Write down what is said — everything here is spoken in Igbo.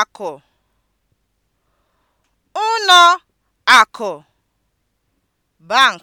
akụ ụnọ akụ (bank)